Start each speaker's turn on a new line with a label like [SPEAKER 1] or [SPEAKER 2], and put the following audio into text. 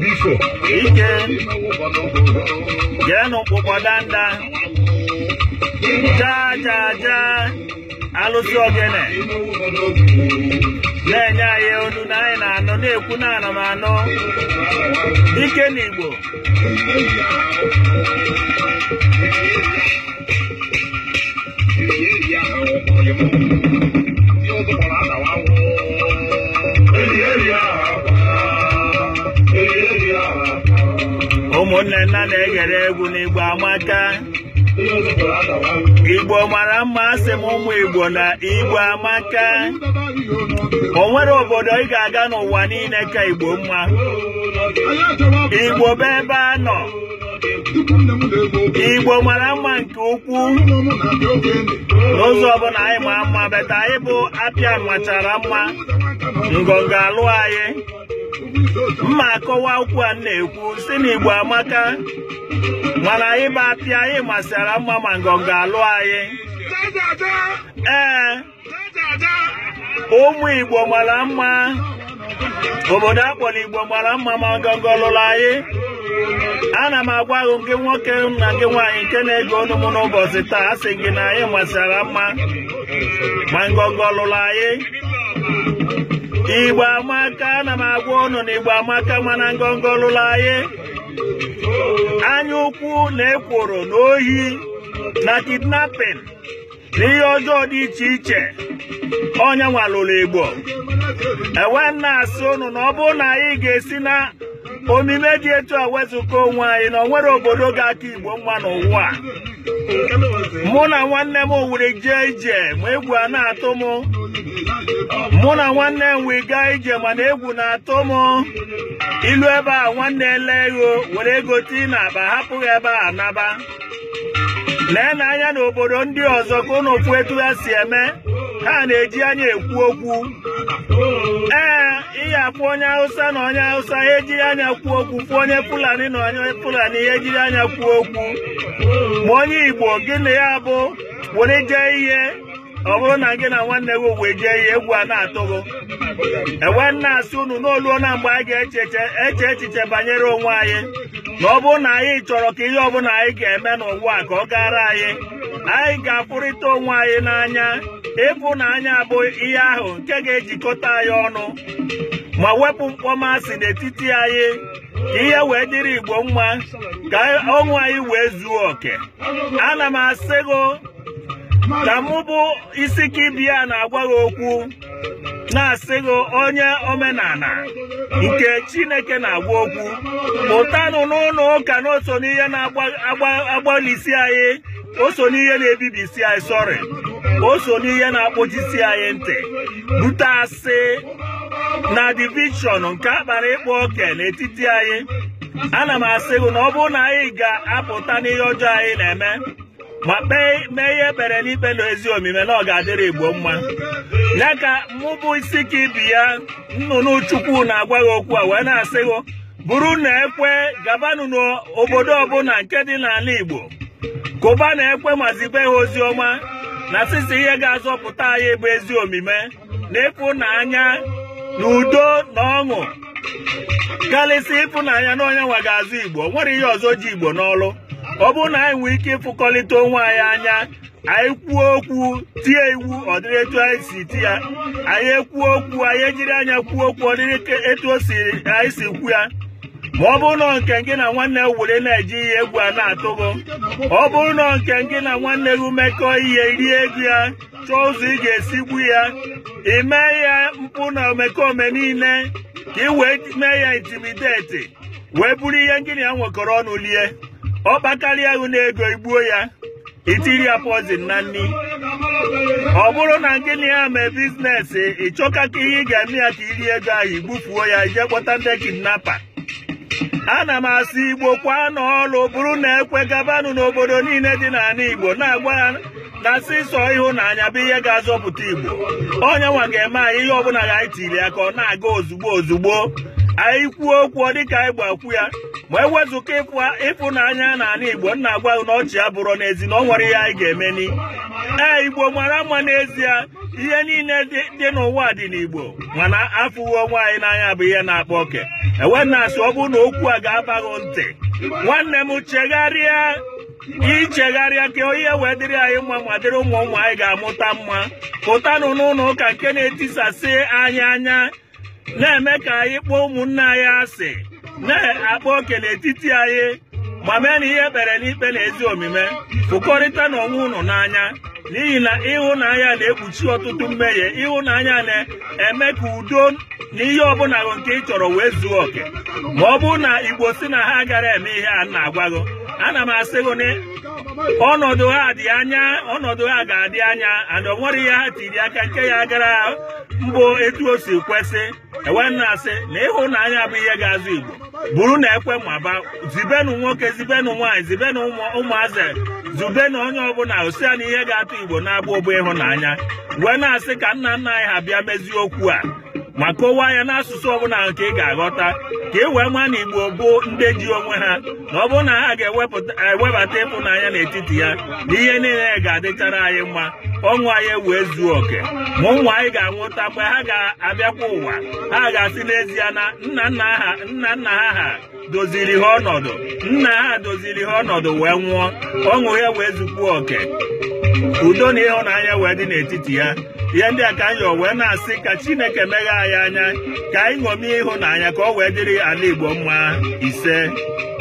[SPEAKER 1] biko ike jee n'ụkpụkpọ danda chaa chaa chaa alụsị ogene na-enye anyị onu na anyị na-anọ na-ekwu na ana m anọ ike igbo. Thank you. ụmụnne nna na egere egwu n'igbo amaka igbo mara mma asị m ụmụ igbo na igbo amaka o nwere obodo ị ga-aga n'ụwa niile ka igbo mma igbo bụ ebe a nọ igbo mara mma nke ukwuu n'ụzọ ọbụla anyị ma mma beta anyị bụ apịa machara mma ngọngọ alụ anyị mma akọwa okwu a na-ekwu si na igbo amaka mana anyị bụ apịa anyị masịara mma ma ngọngọ alụ anyị ee ụmụ igbo mara mma obodo akpọrọ igbo mara mma ma ngọngọ lụrụ anyị ana m agwa gị nke nwoke na gị nwaanyị nke na-ege ọnụ m n'ụbọchị taa a sị gị na anyị masịara mma ma ngọngọ lụrụ anyị igbo amaka na m agwa ụnụ na amaka mana ngọngọ lụrụ anyị anya ukwu na ekworo na ohi na kidnapin na ihe ọjọọ dị iche iche ọnya nwalụrụ igbo ewe nna asị ụnụ na ọ bụrụ na anyị ga-esi na omime dị etu a wezụga onwe anyị na onwere obodo ga-aka igbo mma n'ụwa mụ na nwanne m were jee ije ma egwu a na-atụ m mụ na nwanne m wee gaa ije mana egwu na-atụ m ilu ebe a nwanne ele ego were ego tii na aba ebe a naba lee na anya n'obodo ndị ọzọ ka ụnụ etu ha si eme ha na-eji anya ekwu okwu ee ihe akpụ onye hausa na onye hausa ha ejiri anya kwuo okwu fụ onye fulani na onye fulani ha ejiri anya kwuo okwu ma onye igbo gị na ya bụ were jee ihe ọ bụrụ na gị na nwanne gị wee jee ihe egwu a na-atụgo e nwanne asị unu n'oluo na mgbe anyị ga-eche eche echiche banyere onwe anyị na ọ bụrụ na anyị chọrọ ka ihe ọbụla anyị ga-eme n'ụwa ka ọ gara anyị anyị ga-afụrịta onwe anyị n'anya n'anya bụ ihe ahụ nke ga-ejikọta anyị ọnụ ma wepụ mkpọmasị n'etiti anyị ka ihe wee dịrị Igbo mma ka ọnwụ anyị wee zuo oke ana m asị gị ka mụ bụ isiki biya na-agwa gị okwu na-asị gị onye omenala nke chineke na-agwa okwu pụtanụ n'ụlọ ụka na oso n'ihe na-agbalisi anyị oso n'ihe na-ebibisi anyị sọrị oso n'ihe na-akpụjisi anyị ntị bute asị na divishọn nke akpara ịkpa oke n'etiti anyị ana m asị gị na ọ bụrụ na anyị ga-apụta n'ihe ọjọọ anyị na-eme ma kpee mee ihe ekpere n'ikpe ezi omume na ọ ga-adịrị igbo mma ya ka mụbụ isi ka ibi ya nnụnụ chukwu na-agwa gị okwu a wee na-asị bụrụ na ekwe gabanụ n'obodo ọbụla nke dị n'ala igbo kụba na ekwe Mazibe ha ozi ọma na sisi ihe ga-azọpụta anyị bụ ezi omume na ịfụnanya na udo na ọṅụ karịsịa ịfụnanya na onye nwa ga-azụ igbo nwere ihe ọzọ ji igbo n'ọlụ ọ bụrụ na anyị nwee ike ịfụkọlịta onwe anyị anya anyị kwuo okwu tie iwu ọ dịrị etu anyị si ti ya anyị ekwuo okwu anyị ejiri anya kwuo okwu ọ dịrị etu o si anyị si kwu ya ma ọ bụrụ na nke gị na nwanne were na-eji ihe egwu a na-atụgo ọ bụrụ na nke gị na nwanne gị mekọ ihe rie ego ya chọọ ụzọ ị ga-esi gbu ya ime ya mkpụ na omekome niile ka ị wee mee ya intimideti wee buru ihe ngịnị ya nwekọrọ ọnụ lie ọ ahụ na ego igbuo ya itiri ya pozin na nri ọ bụrụ na gịnị ya mee ị ịchọka ka ihe ị ga-eme ya ka iri ego ahụ igbufuo ya ije kpọta ndị kidnapa ana m asị igbo kwa n'ọlụ bụrụ na ekwe gabanụ n'obodo niile dị n'ala igbo na-agwa n'asị na sịsọ ịhụnanya bụ ihe ga-azọpụta igbo onye nwa ga-eme anyị ihe ọbụla ga anyị tiri ya ka ọ na-aga ozugbo ozugbo anyị kwuo okwu dịka anyị gbakwu ya ma ewezụka na n'ala Igbo nna agwa na ọchị abụrọ n'ezi na ọ nwere ihe anyị ga-emeni ee Igbo mara mma n'ezie ihe niile dị n'ụwa dị n'Igbo mana afụghị onwe anyị n'anya bụ ihe na-akpa oke ewena asị ọ bụrụ na okwu a ga-abaghị ntị nwanne m chegharịa ichegharịa ka ihe wee dịrị anyị mma ma dịrị ụmụ ụmụ anyị ga-amụta mma pụtanụ n'ụlọ ụka nke na-etisasị anyị anya na-eme ka anyị kpọọ ụmụnne anyị asị na akpọ oke n'etiti anyị ma mee na ihe ekpere n'ikpe na ezi omume fụkọrịta na onwe unu n'anya n'ihi na ịhụnanya na-ekpuchi ọtụtụ mmehie ịhụnanya na-eme ka udo na ihe ọbụla nke ị chọrọ wee zuo oke ma ọ bụrụ na igbo si na ha gara eme ihe a na-agwa ana m asị gị na ọnọdụ ha dị anya ọnọdụ ha ga-adị anya and ọ nwere ihe ha tiri aka nke ya gara mbụ etu o si kwesị enwere na-asị na ịhụnanya bụ ihe ga-azụ igbo bụrụ na ekwe maba ba zibenụ nwoke zibenụ nwaanyị zibenụ ụmụazị na onye ọbụla osia na ihe ga-atụ igbo na-abụ ogbo ịhụnanya wee na-asị ka nna nna anyị ha bịa mezie okwu a ma kọwaa ya n'asụsụ ọbụla nke ị ga-aghọta ka e wee maa na igbo bụ ndị ji onwe ha na ọ bụrụ na ha ga-ewebata ịpụnanya n'etiti ya na ihe niile ga-adịchara anyị mma ọnwụ anyị wee zuo oke ma ụmụ anyị ga-anwụta mgbe ha ga-abịakwa ụwa ha ga-asị n'ezie na nna nna ha nna nna ha ha doziri ha ọnọdụ nna ha doziri ha ọnọdụ wee nwụọ ọṅụ ya wee zukpuo oke udo na ịhụnanya wee dị n'etiti ya ihe ndị a ka anyị wee na-asị ka chineke meghe anyị anya ka anyị ṅomie ịhụnanya ka ọ wee dịrị ala igbo mma ise